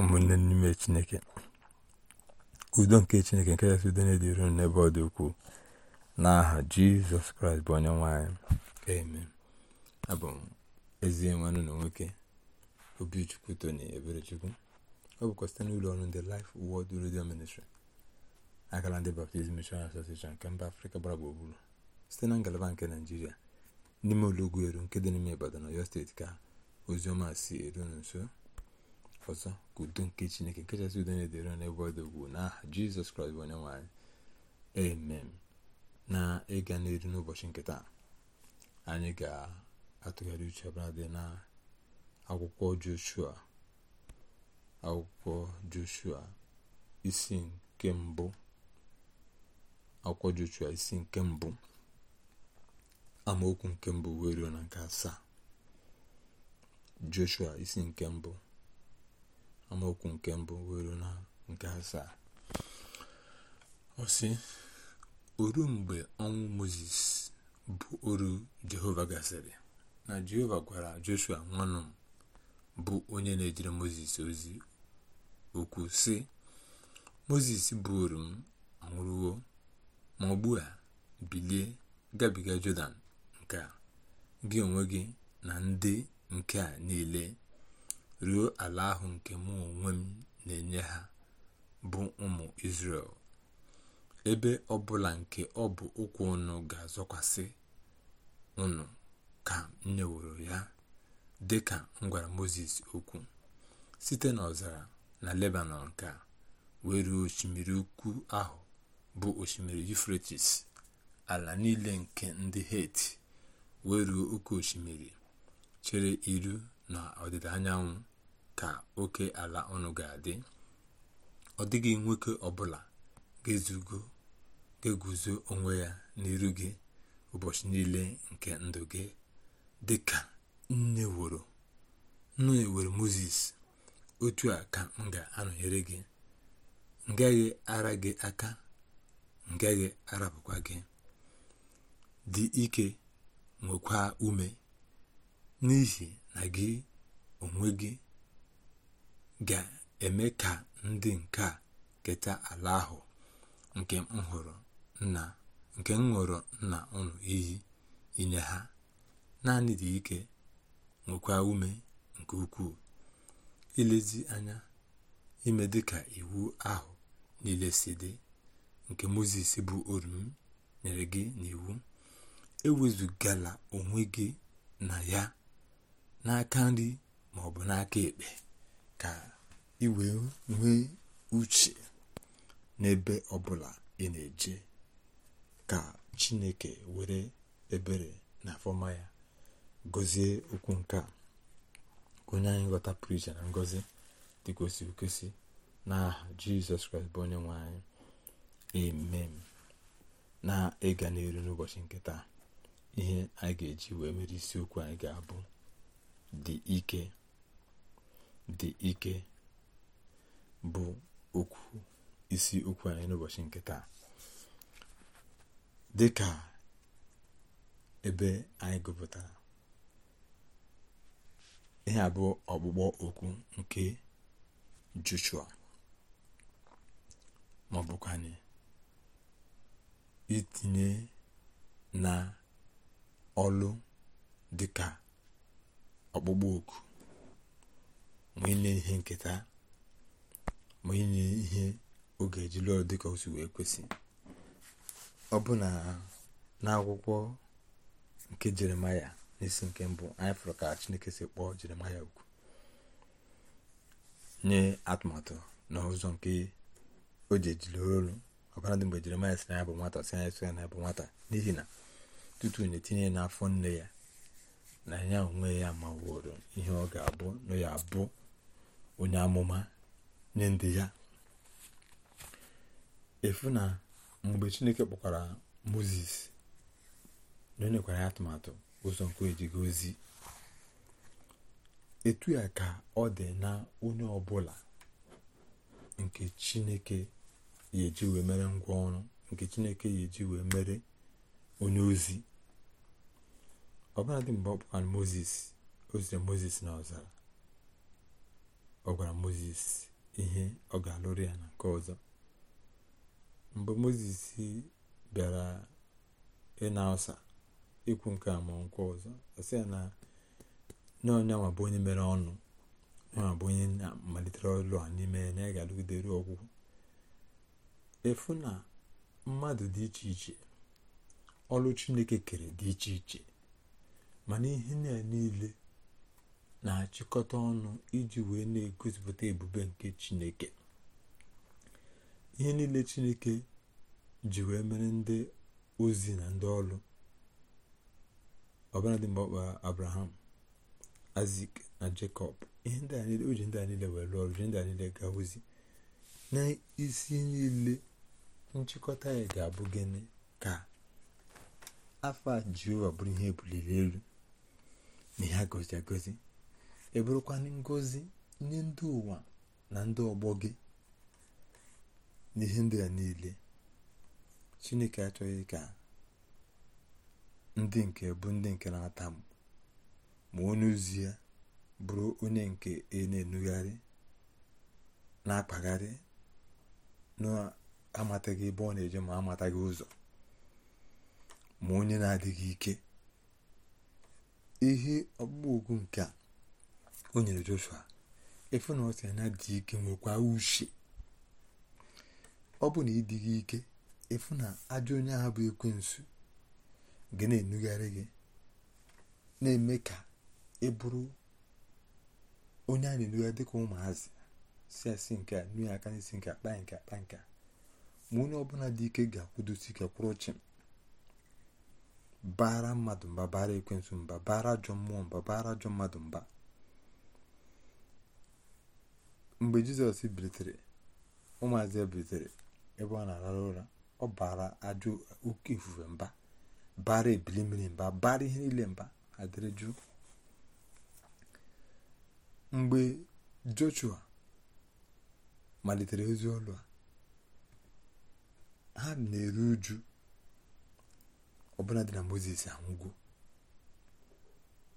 ụmụnne n'ime chineke udo nke chineke nke kachasị udo na-edịru n'ebe ọ dị ukwuu n'aha jizọs kraịst bụ onye nwanyị eme abụ m ezi nwanne na nwoke obichukwu tony eberechukwu ọ bụkwa site n'ụlọ ọrụ ndị Life Word Radio Ministry akara ndị Baptist Mission Association nke mba afrịka gbara gburugburu site na ngalaba nke naijiria n'ime ụlọ ugwu eru nke dị n'ime ibadan ọyọ steeti ka ozioma si eru nso ọzọ ka nke chineke nke chasị udo na-edere n'ebe ọ dị ugwu n'aha jizọs kraịst onye nwanyị amen na ịga n'elu n'ụbọchị nke taa anyị ga-atụgharị uche ọbụla dị na akwụkwọ joshua akwụkwọ joshua isi nke mbụ akwụkwọ joshua isi nke mbụ amaokwu nke mbụ wee ruo na nke asaa joshua isi nke mbụ amaokwu nke mbụ nwere na nke asaa ọ sị oru mgbe ọnwụ moses bụ oru jehova gasịrị na jehova gwara joshua nwanụ bụ onye na-ejere moses ozi okwu sị moses bụ oru m anwụrụwo ma ọ a bilie gabiga jọdan nke a gị onwe gị na ndị nke a niile ruo ala ahụ nke mụ onwe m na-enye ha bụ ụmụ isrel ebe ọbụla nke ọ bụ ụkwụ unu ga-azọkwasị unu ka m nyeworo ya dị ka m gwara moses okwu site n'ọzara na Lebanon ka wee ruo osimiri ukwu ahụ bụ osimiri Yufretis ala niile nke ndị heti wee ruo oke osimiri chere iru na ọdịda anyanwụ ka oke ala ọnụ ga-adị ọ dịghị nwoke ọbụla ga-eguzo onwe ya n'iru gị ụbọchị niile nke ndụ gị dị ka nne woro nnu ewere moses otu a ka m ga-anọnyere gị ngaghị ara gị aka ngaghị gaghị arapụkwa gị dị ike nwekwa ume n'ihi na gị onwe gị ga-eme ka ndị nke a keta ala ahụ nke m hụrụ nna nke m nna unu iyi inye ha naanị dị ike nwekwa ume nke ukwuu ilezi anya ime dịka iwu ahụ niile si dị nke moses bụ orumi nyere gị n'iwu ewezugala onwe gị na ya n'aka nri maọbụ n'aka ekpe ka ị wee nwee uche n'ebe ọbụla ị na-eje ka chineke were ebere na fọma ya gozie okwu nke a onye anyị ghọta pụrụ na ngọzi dị kwesị n'aha jizọs kraịst bụ onye nwe anyị emem na ịga n'elu n'ụbọchị nke taa ihe anyị ga-eji wee mere isiokwu anyị ga-abụ dị ike dị ike bụ okwu isi okwu anyị n'ụbọchị nke taa dị ka ebe anyị gụpụtara ihe abụọ ọkpụkpọ okwu nke Joshua ma itinye na ọlụ dịka ọkpụkpọ oku ma ihe nketa ma ihe oge ejiri ọrụ dịka o si wee kwesị ọ bụ na n'akwụkwọ nke jeremaya n'isi nke mbụ anyị fụrụ ka chineke si kpọọ jeremaya okwu nye atụmatụ na ụzọ nke o ji ejiri ọbara dị mgbe jeremaya sị na ya bụ nwata si anyị sị ya na ya bụ nwata n'ihi na tutu na-etinye n'afọ nne ya na ya onwe ya wụrụ ihe ọ ga-abụ na ya abụ onye amụma nye ndị ya efu na mgbe chineke kpọkwara moses na onyekwara ya atụmatụ ụzọ nke ejighị ozi etu ya ka ọ dị na onye ọbụla nke chineke ya wee mere ngwa ọrụ nke chineke ya eji wee mere onye ozi ọbụladị mgbe ọ kpọkwara moses o moses na ọzara ọ gwara moses ihe ọ ga-alụrụ ya na nke ọzọ mgbe moses bịara ịna ọsa ikwu nke a ma nke ọzọ ọ sị ya na onye bụ onye mere ọnụ nyanwa bụ onye na-amalitere ọlụ a n'ime ya na ya ga-alụgide ruo ọgwụgwụ efu na mmadụ dị iche iche ọlụ chineke kere dị iche iche mana ihe niile na-achịkọta ọnụ iji wee na-egosipụta ebube nke chineke ihe niile chineke ji wee mere ndị ozi na ndị ọrụ ọbụladị mgbe ọkpa abraham azik na jacob ihe ndị a niile ndị a niile wee lụọ ọrụ ji ndị a niile gaa ozi n'isi niile nchịkọta ya ga-abụ gịnị ka afọ a jehova ihe ebuliri elu na ihe agozi agozi ebụrụkwa ngozi nye ndị ụwa na ndị ọgbọ gị n'ihe ndị a niile chineke achọghị ka ndị nke bụ ndị nke na-ata ma onye ozi ya bụrụ onye nke e na-enugharị na-akpagharị na-amataghị ebe ọ na-eje ma amataghị ụzọ ma onye na-adịghị ike ihe ọkpụkpọ nke a o nyere joshua efu na ọ sị na dị ike nwekwa uche ọ bụ na ịdịghị ike efu na ajọ onye ahụ bụ ekwensu gị na-enugharị gị na-eme ka ị bụrụ onye a na-enugharị dịka ụmụazị si asị nke a nue aka n'isi nke akpa nke akpa nke ma onye ọbụla dị ike ga-akwụdosi ike kwụrụ chịm baara mmadụ mba baara ekwensu mba baara ajọ mmụọ mba baara ajọ mmadụ mba mgbe jizọs bilitere ụmụazị ya bilitere ebe ọ na-arara ụra ọ bara ajụ oke ifufe mba bara ebili mmiri mba bara ihe niile mba adịrị jụụ mgbe joshua malitere ozi ọlụ a ha na-eru uju ọbụla dị na mozes anwụgo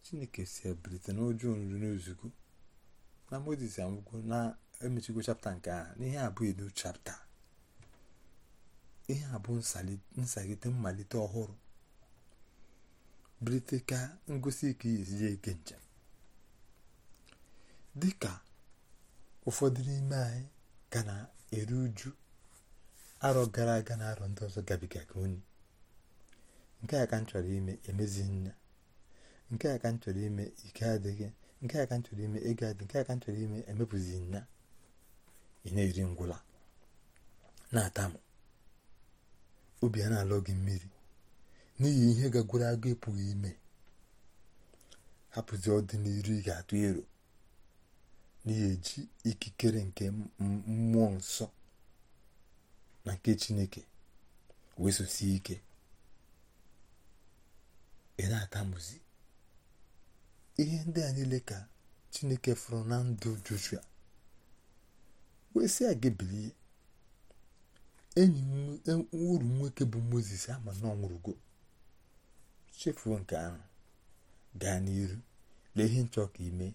chineke si ebilite n'ụjọ nri n'ozugo na moses anwụgo na-emechigo chapta nke a n'ihe ihe abụ ilu chapta ihe bụ nsagide mmalite ọhụrụ brite ka ngosi ike esi ihe eke njem dị ka ụfọdụ n'ime anyị ka na-eru uju arọ gara aga na arọ ndị ọzọ gabigaga onye nke a ka m ime emezighị nna nke a ka m chọrọ ime ike adịghị nke a ka ntụrụ ime ego adị nke a ka ntụrụ ime emepụzi na ị na-eri ngwụla na-atamụ obi a na alụ gị mmiri n'ihi ihe gagoro agụ ịpụghị ime hapụzi ọdịnihu ị ga-atụ ero n'ihi eji ikikere nke mmụọ nsọ na nke chineke wee ike ị na-atamụzi ihe ndị a niile ka chineke fụrụ na ndụ joshua wee sị aga gị bilie enyi e, uru nwoke bụ moses ama na ọ chefuo nke ahụ gaa n'iru lee ihe nchọ ka ime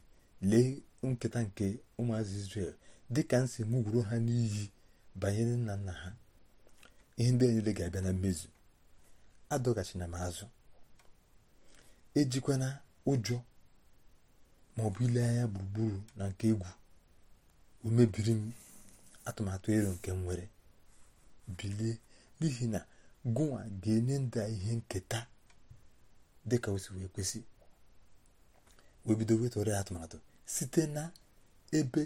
lee nketa nke ụmụazị israel dịka nsi m gwuru ha n'iyi banyere nna nna ha ihe ndị a niile ga-abịa na mmezu adọgachina m azụ ejikwana ụjọ ma ọ bụ ile anya gburugburu na nke egwu o mebiri m atụmatụ ero nke m nwere bilie n'ihi na gụnwa ga-enye ndị ihe nketa dịka o wee kwesị wee bido atụmatụ site na ebe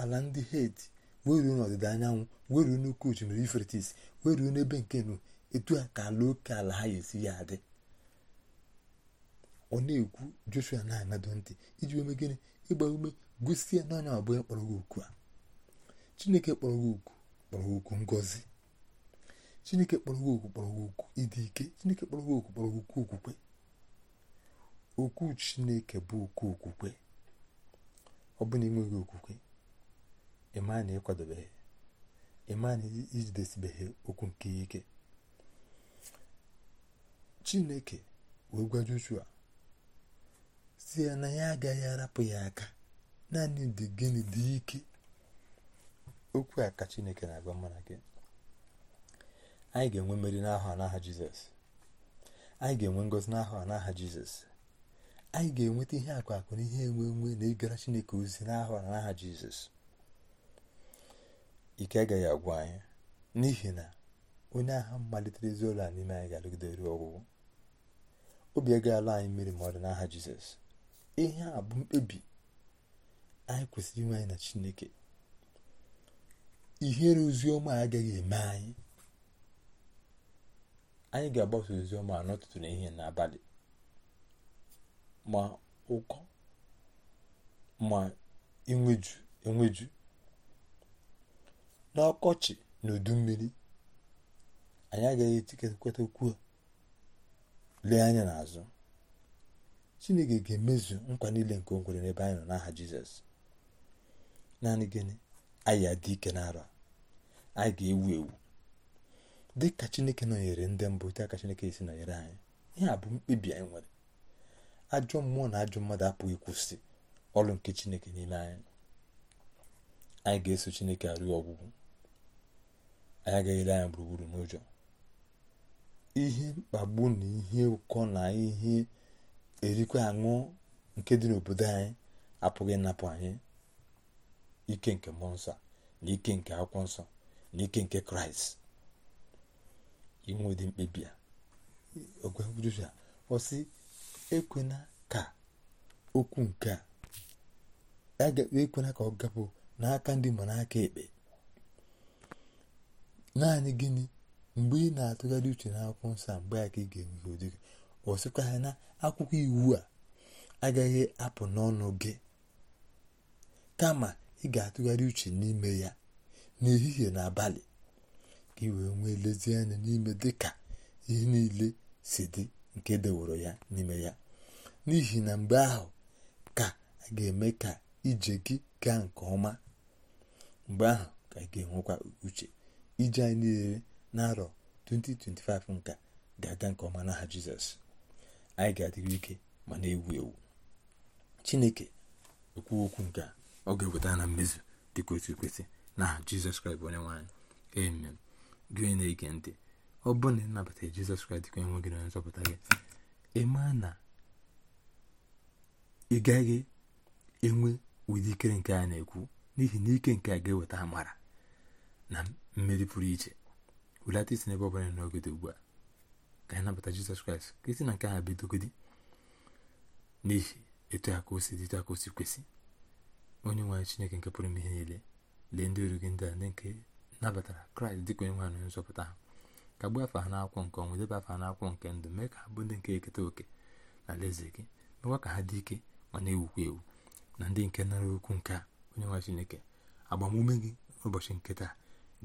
ala ndị heti weruo n'ọdịda anyanwụ weruo n'oke osimiri ifretis weruo n'ebe nke nu etu a ka ala oke ala ha ga-esi ya adị ọ na-ekwu joshua na-anado ntị iji wee megịnị ịgba ume gosi ya n'anya abụọ ya kpọrọ gị okwu a chineke kpọrọ gị okwu kpọrọ gị okwu ngozi. chineke kpọrọ gị okwu kpọrọ gị okwu ịdị ike chineke kpọrọ gị okwu kpọrọ gị okwu okwukwe okwu chineke bụ okwu okwukwe ọ bụ na enweghị okwukwe ịma na ịkwadobeghị ịma na ijidesibeghị okwu nke ike chineke wee gwa joshua si ya na ya agaghị arapụ ya aka naanị dị gịnị dị ike okwu a ka chineke na-agwa mụ na gị anyị ga-enwe mmeri n'ahụ n'aha jizọs anyị ga-enwe ngọzi n'ahụ n'aha jizọs anyị ga-enweta ihe akụ akụ na ihe enwe enwe na ịgara chineke ozi n'ahụ n'aha jizọs ike agaghị agwụ anyị n'ihi na onye agha malitere ezi ụlọ a n'ime anyị ga-alụgide ruo ọgwụgwụ obi agaghị ala anyị mmiri ma ọ dị n'aha jizọs ihe a bụ mkpebi anyị kwesịrị inwe anyị na chineke ihere ozioma agaghị eme anyị anyị ga-agbasa ozioma n'ụtụtụ na ihe n'abalị ma ụkọ ma enweju enweju n'ọkọchị na udu mmiri anyị agaghị etiketa okwu lee anya n'azụ chineke ga-emezu nkwa niile nke o kwere n'ebe anyị nọ n'aha jizọs naanị gịnị anyị adị ike n'arọ anyị ga-ewu ewu dị ka chineke nọnyere ndị mbụ dị ka chineke esi nọnyere anyị ihe a bụ mkpebi anyị nwere ajọ mmụọ na ajọ mmadụ apụghị ịkwụsị ọrụ nke chineke n'ime anyị anyị ga-eso chineke arụ ọgwụgwụ anyị agaghị ele anya gburugburu n'ụjọ ihe mkpagbu na ihe ụkọ na ihe erikwa aṅụ nke dị n'obodo anyị apụghị ịnapụ anyị ike nke mmụọ nsọ na ike nke akwụkwọ nsọ na ike nke kraịst inwe ụdị mkpebi a ogwegwuruja ọ ekwena ka okwu nke a ekwena ka ọ gapụ n'aka ndị ma n'aka ekpe naanị gịnị mgbe ị na-atụgharị uche n'akwụkwọ nsọ mgbe a ka ị ga-enwe ụdị gị ọ sịkwa na akwụkwọ iwu a agaghị apụ n'ọnụ gị kama ị ga-atụgharị uche n'ime ya n'ehihie na abalị ka ị wee nwee lezianya n'ime dị ka ihe niile si dị nke deworo ya n'ime ya n'ihi na mgbe ahụ ka a ga-eme ka ije gị gaa nke ọma mgbe ahụ ka ị ga-enwekwa uche ije anyị niile n'arọ 2025 nka ga-aga nke ọma n'aha Jizọs anyị ga-adịghị ike ma na-ewu ewu chineke ekwu okwu nke a ọ ga-eweta na mmezu dịka otu kwesị na jizọs kraịst onye nwaanyị amen gị onye na-ege ntị ọ bụrụ na ịnabata jizọs kraịst ka enwe na nzọpụta gị ịma na ị gaghị enwe ụdị ikere nke a na-ekwu n'ihi na ike nke a ga-eweta amara na mmeri pụrụ iche wulata isi n'ebe ọ bụla n'oge dị ugbu a ka anyị nabata jizọs kraịst na nke ha bidogodi n'ihi etu a ka o si dị etu a ka o si kwesị onye nwe chineke nke pụrụ ime ihe niile lee ndị oru gị ndị a ndị nke nabatara kraịst dịka onye nwe anyị nzọpụta ha ka gbuo afọ ha akwụkwọ nke ọnwụ debe afọ ha n'akwụkwọ nke ndụ mee ka ha bụ ndị nke eketa oke na alaeze gị mekwa ka ha dị ike ma na-ewukwa ewu na ndị nke nara okwu nke a onye nwe chineke agbamume gị n'ụbọchị nke taa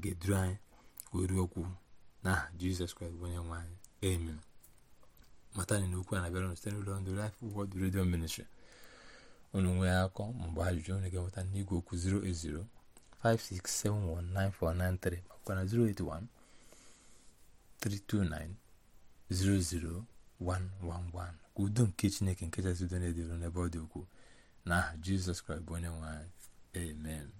ga-eduru anyị wee ruo okwu n'aha jizọs kraịst bụ onye nwe anyị Amen. Matani n'okwu a na-abịara site n'ụlọ ndụ Life Word Radio Ministry. Unu nwee akọ mgbe ajụjụ unu ga-enweta n'igwe okwu 080 56719493 makwa na 081 329 00111 ka udo nke Chineke nke chasị udo na-edịru n'ebe ọ dị ukwuu n'aha Jizọs Kraịst bụ onye nwe